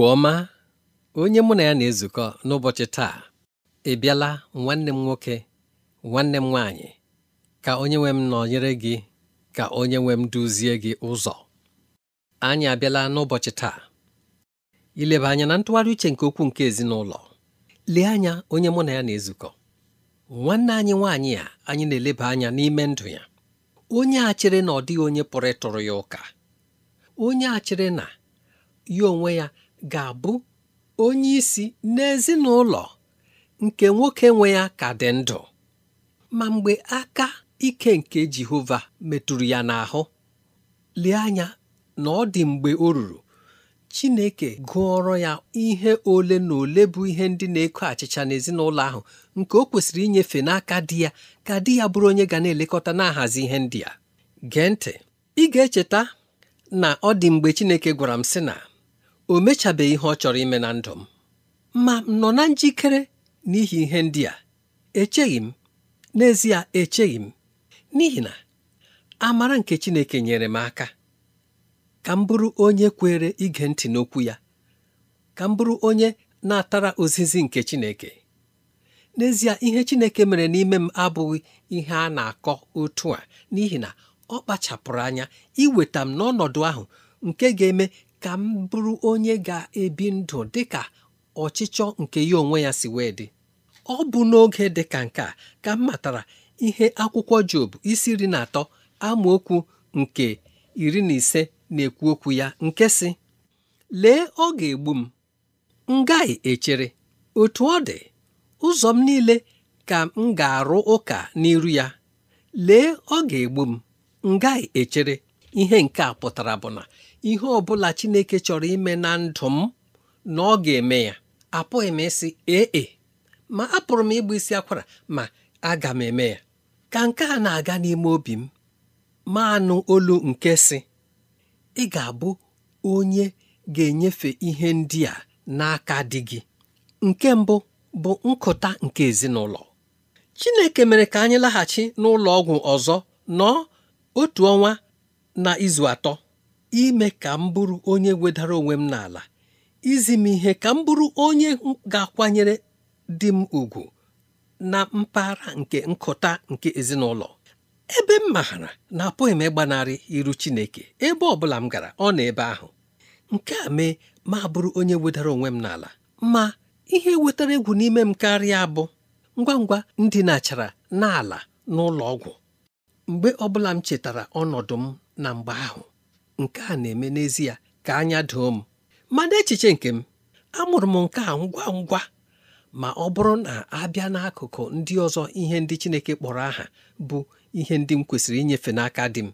Igbo ọma onye mụ na ya na-ezukọ n'ụbọchị taa ị bịala nwanne m nwoke nwanne m nwaanyị ka onye nwe m nọnyere gị ka onye nwe m duzie gị ụzọ anyị abịala n'ụbọchị taa ileba anya na ntụgharị uche nke okwu nke ezinụlọ lee anya onye mụ na ya na-ezukọ nwanne anyị nwaanyị a anyị na-eleba anya n'ime ndụ ya onye a chere na ọ dịghị onye pụrụ ịtụrụ ya ụka onye a chere na ya onwe ya ga-abụ onye isi n'ezinụlọ nke nwoke nwe ya ka dị ndụ ma mgbe aka ike nke Jehova metụrụ ya n'ahụ lee anya na ọ dị mgbe o ruru Chineke gụọrọ ya ihe ole na ole bụ ihe ndị na-eko achịcha n'ezinụlọ ahụ nke o kwesịrị inyefe n'aka dị ya ka di ya bụrụ onye ga na-elekọta na-ahazi ihe ndị a gee ntị ị ga-echeta na ọ dị mgbe Chineke gwara m sị na o mechabeghị ihe ọ chọrọ ime na ndụ m ma m nọ na njikere n'ihi ihe ndị a echeghị m n'ezie echeghị m n'ihi na amara nke Chineke nyere m aka ka m bụrụ onye kwere ige ntị n'okwu ya ka m bụrụ onye na-atara ozizi nke Chineke n'ezie ihe Chineke mere n'ime m abụghị ihe a na-akọ otu a n'ihi na ọ kpachapụrụ anya iweta m n'ọnọdụ ahụ nke ga-eme ka m bụrụ onye ga-ebi ndụ dị ka ọchịchọ nke ya onwe ya si wee dị ọ bụ n'oge dị ka nke a ka m matara ihe akwụkwọ Job isi iri na atọ amaokwu nke iri na ise na-ekwu okwu ya nke si lee ọ ga-egbu m m echere otu ọ dị ụzọ m niile ka m ga-arụ ụka n'iru ya lee ọ ga-egbu m m echere ihe nke a pụtara bụ na ihe ọ bụla Chineke chọrọ ime na ndụ m na ọ ga-eme ya apụghị m ịsị ee e, ma pụrụ m ịgba isi akwara ma aga m eme ya ka nke a na-aga n'ime obi m ma anụ olu nke si ị ga-abụ onye ga-enyefe ihe ndị a n'aka di gị nke mbụ bụ nkụta nke ezinụlọ Chineke mere ka anyị laghachi n'ụlọ ọgwụ ọzọ nọọ otu ọnwa na izu atọ ime ka m bụrụ onye wedara onwe m n'ala izi m ihe ka m bụrụ onye ga-akwanyere di m ugwu na mpaghara nke nkụta nke ezinụlọ ebe m maara na apụghị m ịgbanarị iru Chineke ebe ọ bụla m gara ọ na ebe ahụ nke a mee ma bụrụ onye wedara onwe m n'ala ma ihe wetara egwu n'ime m karịa bụ ngwa ngwa m dinachara n'ala n'ụlọ ọgwụ mgbe ọ bụla m chetara ọnọdụ m na mgbe ahụ nke a na-eme n'ezie ka anya doo m mana echiche nke m amụrụ m nke a ngwa ngwa ma ọ bụrụ na abịa n'akụkụ ndị ọzọ ihe ndị Chineke kpọrọ aha bụ ihe ndị m kwesịrị inyefe n'aka di m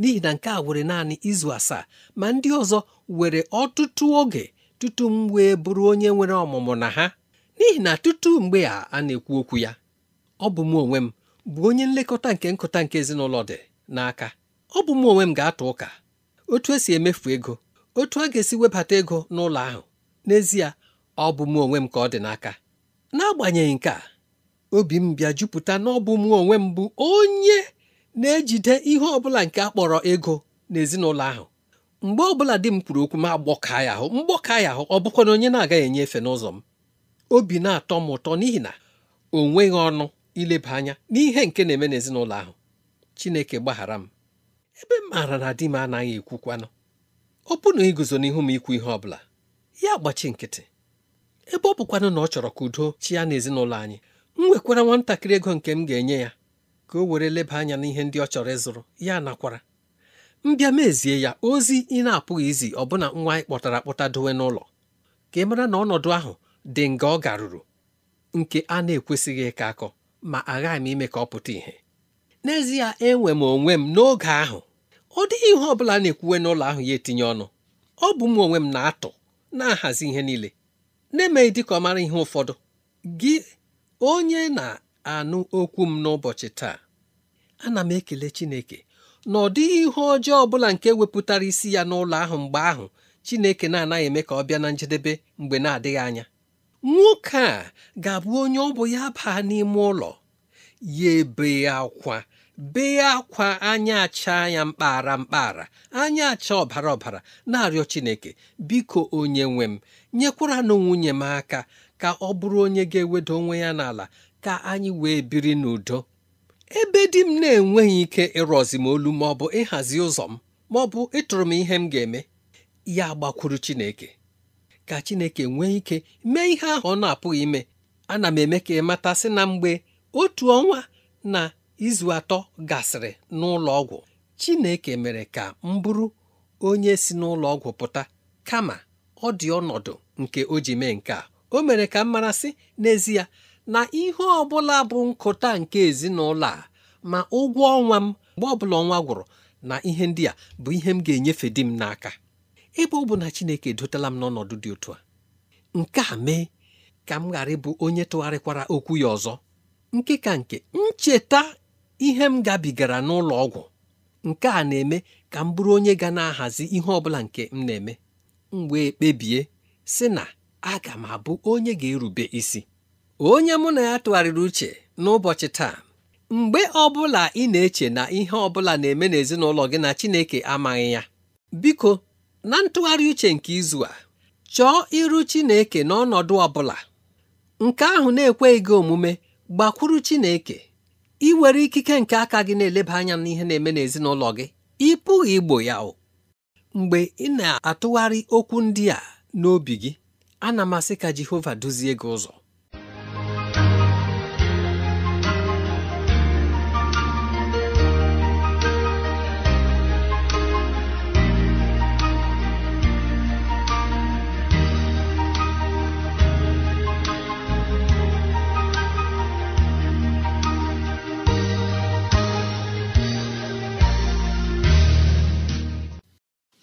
n'ihi na nke a were naanị izu asaa ma ndị ọzọ were ọtụtụ oge tutu m wee bụrụ onye nwere ọmụmụ na ha n'ihi na tutu mgbe a a na-ekwu okwu ya ọ bụ m onwe m bụ onye nlekọta nke nkụta nke ezinụlọ dị n'aka ọ bụ m onwe m ga-atụ ụka otu esi emefu ego otu a ga-esi webata ego n'ụlọ ahụ n'ezie ọ bụ m onwe m ka ọ dị n'aka n'agbanyeghị nke a obi m bịa jupụta na ọ bụ m onwe m bụ onye na-ejide ihe ọbụla nke a kpọrọ ego n'ezinụlọ ahụ mgbe ọbụla di m kwuru okwu m agbọka ya ahụ mgbọka ya ahụ ọ bụkwa na onye na-agaghị enye efe n'ụzọ m obi na-atọ m ụtọ n'ihi na o nweghị ọnụ ileba anya n'ihe nke na-eme n'ezinụlọ ahụ Chineke gbaghara m ebe m maara na di m anaghị ekwukwanụ ọ bụ na iguzo n'ihu m ikwu ihe ọ bụla ya gbachi nkịtị ebe ọ bụkwanụ na ọ chọrọ ka udo chi ya na ezinụlọ anyị m nwekwara nwatakịrị ego nke m ga-enye ya ka o were leba anya n'ihe ndị ọ chọrọ ịzụrụ ya nakwara mbịa mezie ya ozi ị na-apụghị izi ọbụna nwa anyị kpọtara akpọta dowe n'ụlọ ka ị mara na ọnọdụ ahụ dị nga ọ garuru nke a na-ekwesịghị ịka akọ ma aghaghị m ime ka ọ pụta ìhè n'ezie enwe m onwe m n'oge ahụ ọ dịghị ihe ọ bụla na-ekwuwe n'ụlọ ahụ ya etinye ọnụ ọ bụ m onwe m na-atụ na-ahazi ihe niile na-emeghị dịka ọ mara ihe ụfọdụ gị onye na-anụ okwu m n'ụbọchị taa ana m ekele Chineke na ọ dịghị ihe ọjọọ ọ bụla nke wepụtara isi ya n'ụlọ ahụ mgbe ahụ Chineke na-anaghị eme ka ọ bịa na njedebe mgbe na-adịghị anya nwoke a ga-abụ onye ọ bụ ya baa n'ime ụlọ ya ebe akwa bee akwa anya acha ya mkpara mkpara anya acha ọbara ọbara na-arịọ Chineke biko onye nwe m nyekwaranụ nwunye m aka ka ọ bụrụ onye ga-ewedo onwe ya n'ala ka anyị wee biri n'udo ebe di m na-enweghị ike ịrọzi m olu ma ọ bụ ịhazi ụzọ m ma ọ bụ ịtụrụ m ihe m ga-eme ya gbakwuru Chineke ka Chineke nwee ike mee ihe ahụ ọ na-apụghị ime ana m eme ka ị mata sị na mgbe otu ọnwa na izu atọ gasịrị n'ụlọ ọgwụ Chineke mere ka m bụrụ onye si n'ụlọ ọgwụ pụta kama ọ dị ọnọdụ nke o ji mee nke a o mere ka m mara sị n'ezie na ihe ọ bụla bụ nkụta nke ezinụlọ a ma ụgwọ ọnwa m mgbe ọ bụla ọnwa gwụrụ na ihe ndị a bụ ihe m ga-enyefe di m n'aka ebe ọ bụ na Chineke dotela m n'ọnọdụ dị otu a nke a mee ka m ghara ịbụ onye tụgharịkwara okwu ya ọzọ nke ka nke ncheta ihe m gabigara n'ụlọ ọgwụ nke a na-eme ka m bụrụ onye ga na-ahazi ihe ọbụla nke m na-eme m wee kpebie sị na aga m abụ onye ga-erube isi onye mụ na ya tụgharịrị uche n'ụbọchị taa mgbe ọbụla ị na-eche na ihe ọbụla na-eme n'ezinụlọ gị na Chineke amaghị ya biko na ntụgharị uche nke izu a chọọ iru Chineke n'ọnọdụ bụla, nke ahụ na-ekweghị gị omume gbakwuru Chineke ị were ikike nke aka gị na-eleba anya n'ihe na-eme n'ezinụlọ gị ị pụghị igbo ya o mgbe ị na-atụgharị okwu ndị a n'obi gị ana m asị ka Jehova duzie gị ụzọ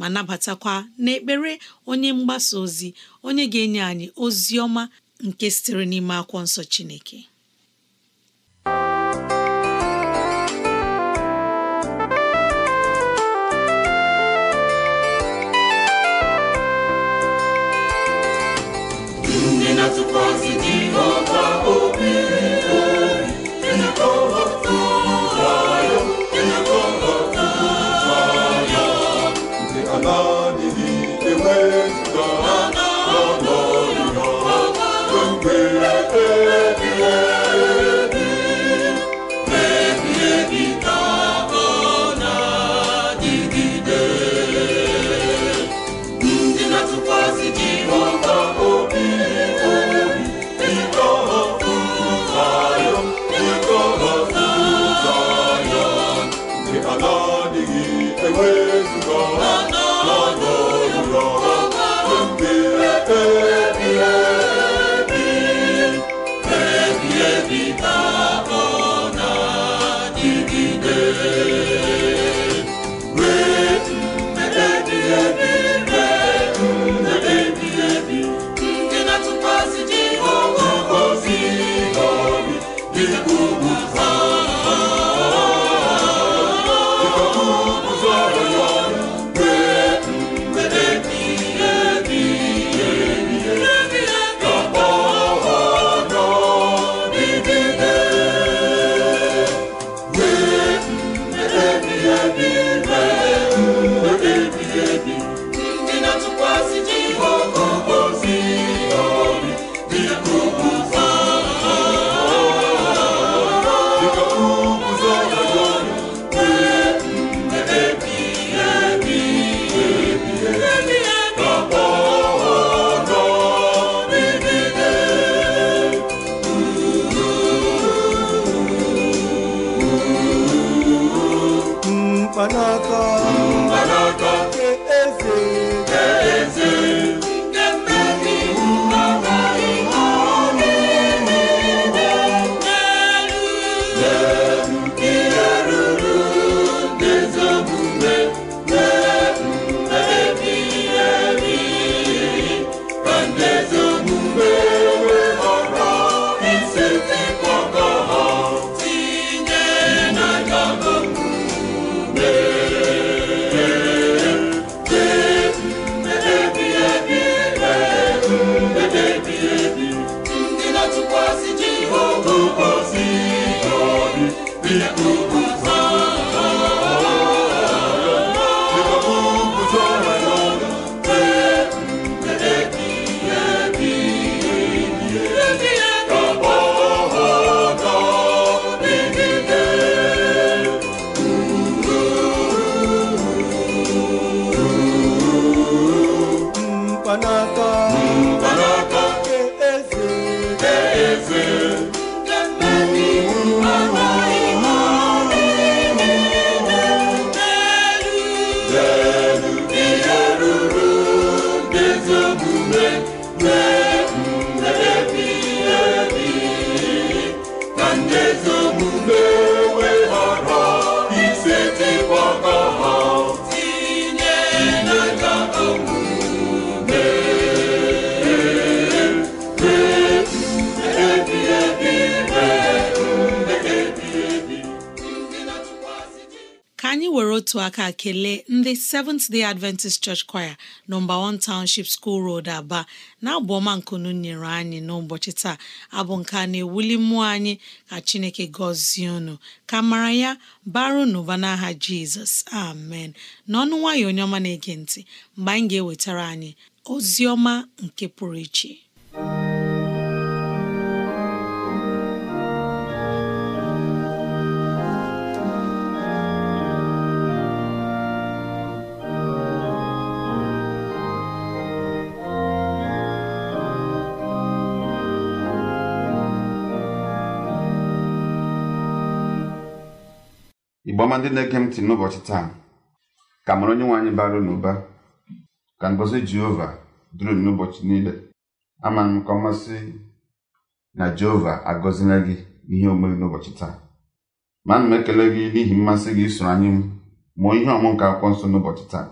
ma nabatakwa n'ekpere onye mgbasa ozi onye ga-enye anyị ozi ọma nke sitere n'ime akwọ nsọ Chineke Otu aka kelee ndị Seventh Day Adventist Church Choir nọmba 1 Township School Road Aba na abụ ọma nkunu nyere anyị n'ụbọchị taa abụ nke na-ewuli mmụọ anyị ka Chineke gọzie unu ka mara ya baru n'ụba n'aha Jizọs amen n'ọnụ nwayọ onye ọma na-ege ntị mgbe anyị ga-ewetara anyị ozi ọma nke pụrụ iche ọma ndị na-ege ntị n'ụbọchị taa ka mara onye nwe anyị bara na ụba ka ngọzi jehova duru n'ụbọchị niile ama m ka ọ masị na jehova agọzila gị ihe omere n'ụbọchị taa ma m ekele gị n'ihi mmasị gị isoro anyị mụọ ihe ọmụ nke akwụkwọ nsọ n'ụbọchị taa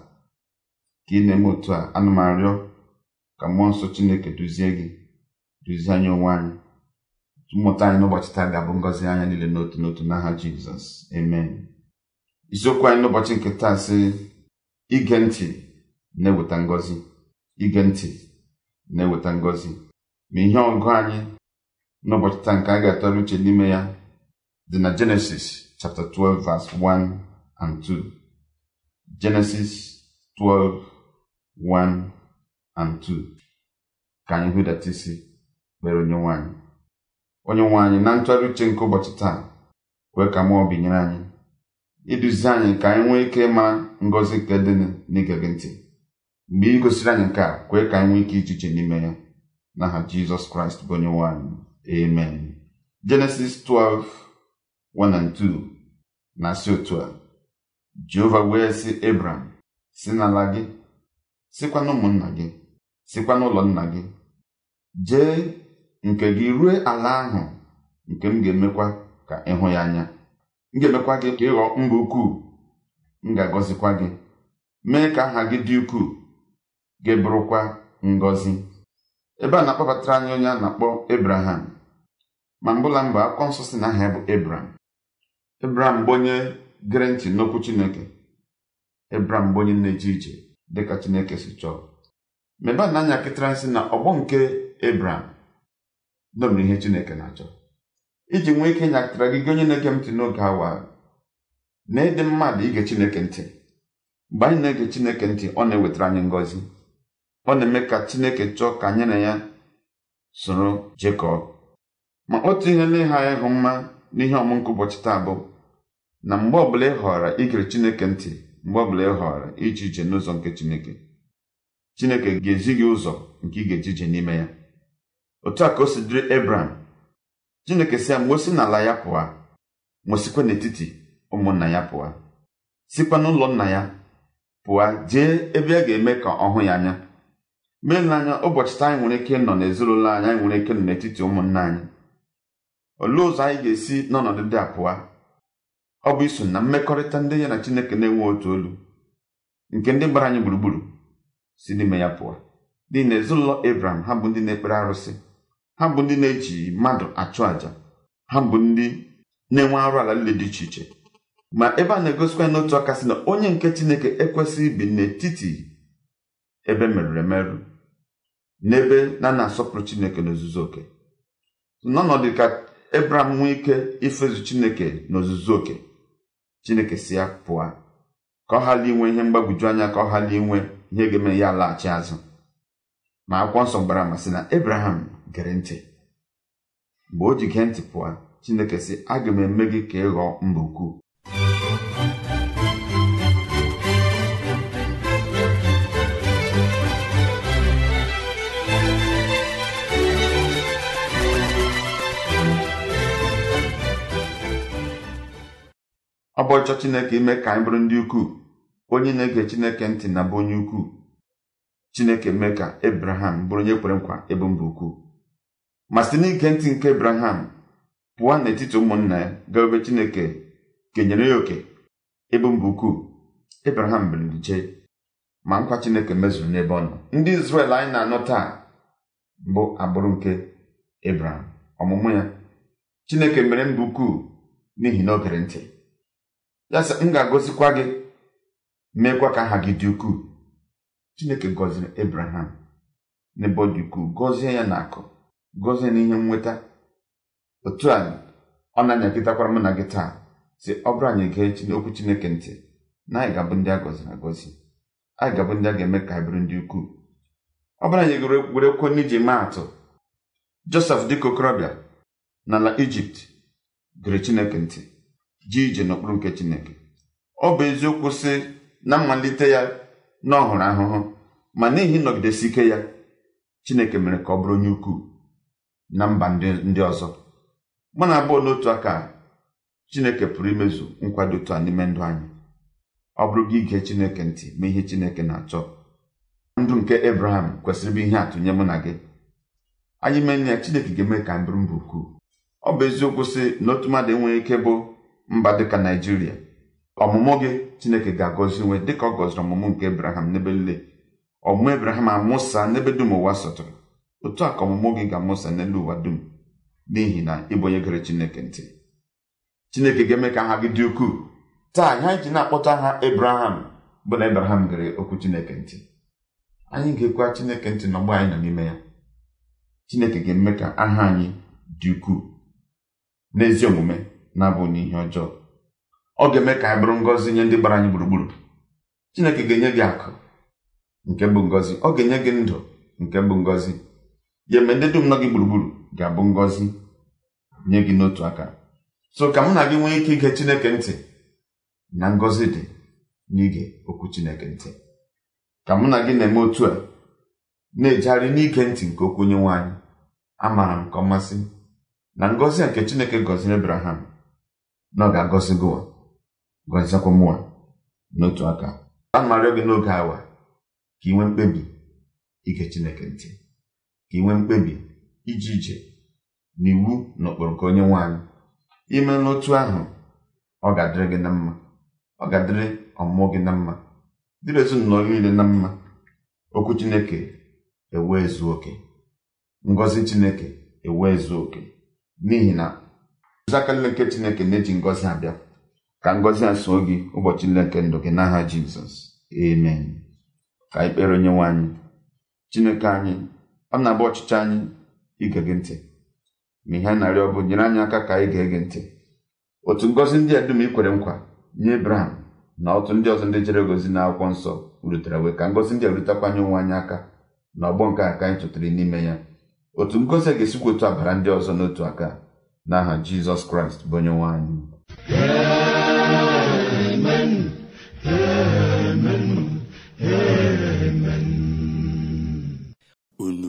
ka ị na-eme otu a ana m arịọ ka mmụọ nsọ chineke duzie gị duzie anyị onwe anyị mmụta anyị n'ụbọchị taa ga-abụ ngọzi anya niile n'otu n'otu n'aha jizọs amen isiokwu anyị n'ụbọchị nke taa sị ige ntị na-eweta ngozi, ige ntị na-eweta ngozi ma ihe ọgụ anyị n'ụbọchị taa nke a ga-atọrọ uche n'ime ya dị na Genesis chapter 12 verse 1 and 2 Genesis 12 1 and 2 ka anyị hụdata isi kpere onye nwaanyị onye nwaanyị na ntụgharị uche nke ụbọchị taa wee ka mmụọ binyere anyị iduzi anyị ka anyị nwee ike ịma ngọzi nke dị n'ige gị ntị mgbe ị gosiri anyị nke a kwee ka anyị nwee ike ijiche n'ime ya n'aha jizọs kraịst bụ onye nwanyị amen jenesis 12 2 na-asị otu a jehova wee sị ebram si n'ala gị sikwa n'ụmụnna gị sikwa n'ụlọ nna gị jee nke gị rue ala ahụ nke m ga-emekwa ka ịhụ ya anya m ga-emekwa gị ka ịghọ mba ukwuu m ga-agọzikwa gị mee ka aha gị dị ukwuu gị bụrụkwa ngọzi ebe a na-akpọbatara anyị onye a na-akpọ ebraham ma mbụla mba akwụkwọ nsọ si na aha ya bụ ebraham ebraham bụ onye n'okwu chineke Abraham bụ onye na dịka chineke si chọọ mebe a na anya kịtara nsị na ọgbọ nke ebraham domere ihe chineke na-achọ iji nwee ike ịnyakịtara gị gị onye na-ege m ntị n'oge awa na ịdị mmadụ ige Chineke ntị mgbe anyị na-ege Chineke ntị ọ na-ewetara anyị ngọzi ọ na-eme ka Chineke chọọ ka anyị na ya soro Jekọb ma otu ihe na anyị hụ mma n'ihe ọmụnkụ ụbọchị taa bụ na mgbe ọbụla ị họrọ igere Chineke ntị mgbe ọbụla ị họrọ iji ije n'ụzọ nke Chineke Chineke ga-ezi gị ụzọ nke ị ga-eji ije n'ime ya otu a ka o si dịrị Abraham chineke si ya ma o n'ala ya pụa ma sikwa n'etiti ụmụnna ya pụa sikwa n'ụlọ nna ya pụa jee ebe a ga-eme ka ọ hụ ya anya mee n'anya ụbọchị taa anyị nwere ike nọ n'ezinụlọ anyị anyị nwere ike nọ n'etiti ụmụnna anyị olee ụzọ anyị ga-esi n'ọnọdụ dị a pụa ọ bụ iso na mmekọrịta ndị ya na chineke na-enwe otu olu nke ndị gbara anyị gburugburu si n'ime ya pụọ n'ihi na ezinụlọ Abraham ha bụ ndị na-ekpere arụsị ha bụ ndị na-eji mmadụ achụ àjà ha bụ ndị na-enwe arụ ala nle dị iche iche ma ebe a na-egosikwa n'otu aka sị na onye nke chineke ekwesịghị ibi n'etiti ebe merụrụ emerụ n'ebe na na-asọpụrụ chineke n'ozuzu oke n'ọnọdụ ka ebraham nwee ike ifezu chineke n'ozuzu oke chineke si ya pụọ ka ọ ghara inwe ihe mgbagwoju anya ka ọ ghara inwe ihe ga-eme ya laghachi azụ ma akwụkwọ nsọ gbara amasị na ebraham gere ntị mgbe o ji gee ntị pụọ chineke sị aga m eme gị ka ị ghọọ mba ukwu ọ bụ ọchọ chineke ime ka anyị bụrụ ndị ukwuu onye na-ege chineke ntị na bụ onye ukwuu chineke mee ka abraham bụrụ onye kwere nkwa ebe mba ukwuu ma site n'ike ntị nke abraham pụọ n'etiti ụmụnna ya ga ebe chineke kenyere ya oke ebe mba ukwuu abraham bilije ma nkwa chineke mezuru n'ebe ọ nọ ndị izrel anyị na-anọ taa bụ agbụrụ nke abraham ọmụmụ ya chineke mere mba ukwuu n'ihi na o ntị ya sị m ga-agọzikwa gị meekwa ka aha gị dị ukwuu chineke gọziri abraham n'ebe ọ dị ukwuu gọzie ya na akụ gọzie na ihe nweta otu a ọ na-anyapịtakwara m na gị taa si ọ bụrụ anyị gee okwu chineke ntị na anyị ga-abụ ndị a gọziri agọzi anyị ga-abụ ndị a ga-eme ka anyị bụrụ ndị ukwuu ọ bụrụ anyị were kwonye iji maa atụ josef dịka okorobịa n'ala ijipt gere chineke ntị ji ije n'okpuru nke chineke ọ bụ eziokwu si na mmalite ya na ọ ahụhụ ma n'ihi nọgidesi ike ya chineke mere ka ọ bụrụ onye ukwuu na mba ndị ọzọ mụ na abụọ n'otu aka chineke pụrụ imezu nkwado otu a n'ime ndụ anyị ọ bụrụ gị ige chineke ntị mee ihe chineke na-achọ ndụ nke ebraham kwesịrị bụ ihe atụ nye mụ na gị anyị mee nne ya chineke ga-eme ka m mbụ mba ukwuu ọ bụ eziokwu sị na otu mmadụ enweghị ike bụ mba dịka naijiria ọmụmụ gị chineke ga-agọzi nwe dịka ọ gọziri ọmụmụ nke ebraham n'ebe nle ọmụmụ ebraham amụsa n'ebe dum ụwa sọtụrụ otu a ka ọmụmụ gị ga-amụsa n'elu ụwa dum n'ihi na ịbụ onye gere chineke ntị chineke ga-eme ka aha gị dị ukwuu taa ihe anyị ji na-akpọta aha ebraham bụ na ebraham gere okwu chineke ntị anyị ga-ekwe chineke ntị na ọgbọ anyị nọ n'ime ya chineke ga-eme ka aha anyị dị ukwuu n'ezi omume na abụghị n'ihe ọjọọ ọ ga-eme ka anyị bụrụ ngọzi nye ndị gbara anyị gburugburu chineke ga-enye gị akụ nke bụ ngọzi ọ ga-enye gị ndụ nke bụ ngọzi ya eme ndị dum nọ gị gburugburu ga-abụ ngọzi nye gị n'otu aka so ka mụ na gị nwee ike ige Chineke ntị na ngọzi dị n'ige okwu Chineke ntị ka mụ na gị na-eme otu a na-ejegharị n'ige ntị nke okwu onye nwe anyị amaara m ka ọ masị na ngọzi a nke Chineke gọziri Abraham na ọ ga-agọzi gị gọziekwa mụwa n'otu aka a na gị n'oge awa ka ị nwee mkpebi ige Chineke ntị ka mkpebi ije ije na iwu na ụkpụrụ nke onye nwe ime n'otu ahụ ọ ga-adịrị gị na mma ọ ga-adịrị ọmụmụ gị na mma dịrị ezinụlọ niile na mma okwu chineke ewee zuo oke ngọzi chineke ewee zuo oke n'ihi na oziaka nke chineke na-eji ngọzi abịa ka ngọzi a soo gị ụbọchị niile nke ndụ gị n'aha jizọs Emen. ka ikpere onye nwe chineke anyị m na-agba ọchịchị anyị ige gị ntị ma ihe a na-arịọ bụ nyere anyị aka ka anyị gee gị ntị otu ngọzi ndị a dum nkwa nye Ebraham na otu ndị ọzọ ndị chere gozi na akwụkwọ nsọ rutere wee ka ngọzi ndị a rutakwanye onwe anyị aka na ọgbọ nke a ka anyị tụtara n'ime ya otu ngọzi a ga-esikwa otu abara ndị ọzọ n'otu aka n'aha Jizọs Kraịst bụ onye nwe anyị unu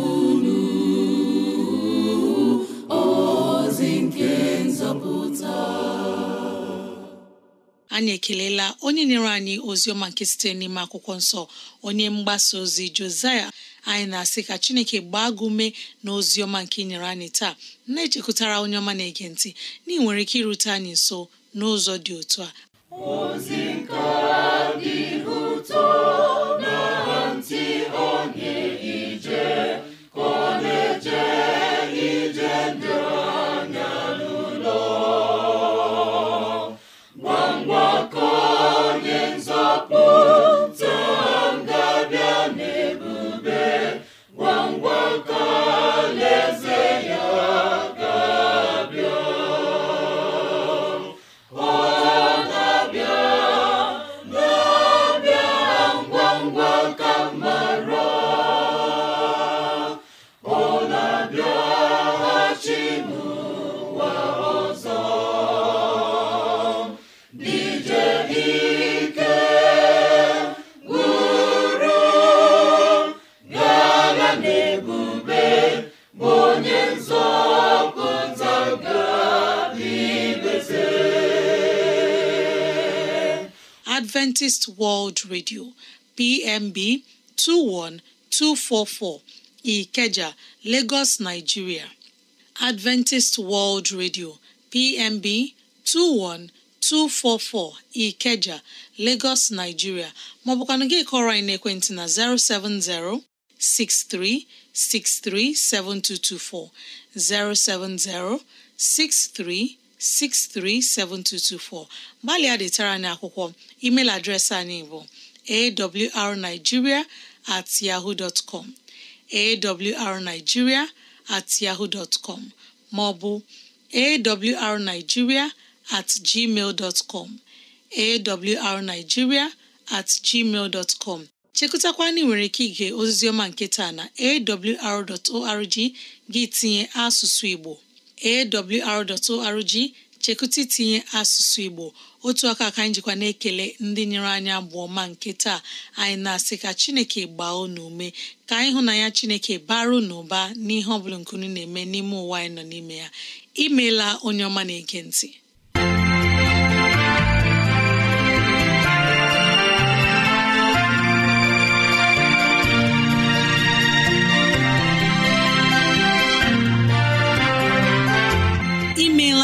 anyị ekelela onye nyere anyị ozi ọma nke site n'ime akwụkwọ nsọ onye mgbasa ozi Josaya anyị na-asị ka Chineke gbaa gị na ozi ọma nke ị anyị taa na-echekwutara onye ọma na-ege ntị na nwere ike irute anyị nso n'ụzọ dị otu a Adventist World Radio PMB 21244 Ikeja, Lagos, Nigeria. Adventist World Radio PMB 21244 Ikeja, Lagos, Nigeria ma ọ bụkwanụ gị kọrọ anyị n'ekwentị na 070 7224, 070 63 637224 gbalịa detara anyị akwụkwọ email adreesị anyị bụ awrnigeria at yahoo dot com at yahoo com ma at gmail dot com at gmail dot chekụtakwana nwere ike ige oziziọma nke taa na awr.org gị tinye asụsụ Igbo awr.org chekụta itinye asụsụ Igbo otu aka ka anyị jikwa na-ekele ndị nyere anyị abụọ ma nke taa anyị na-asị ka Chineke gbaa unu ume ka anyị hụ na ya Chineke bara unu ụba n'ihe ọbụla bụla nkunu na-eme n'ime ụwa anyị nọ n'ime ya imeela onye ọma na-ege ntị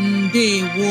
ndewo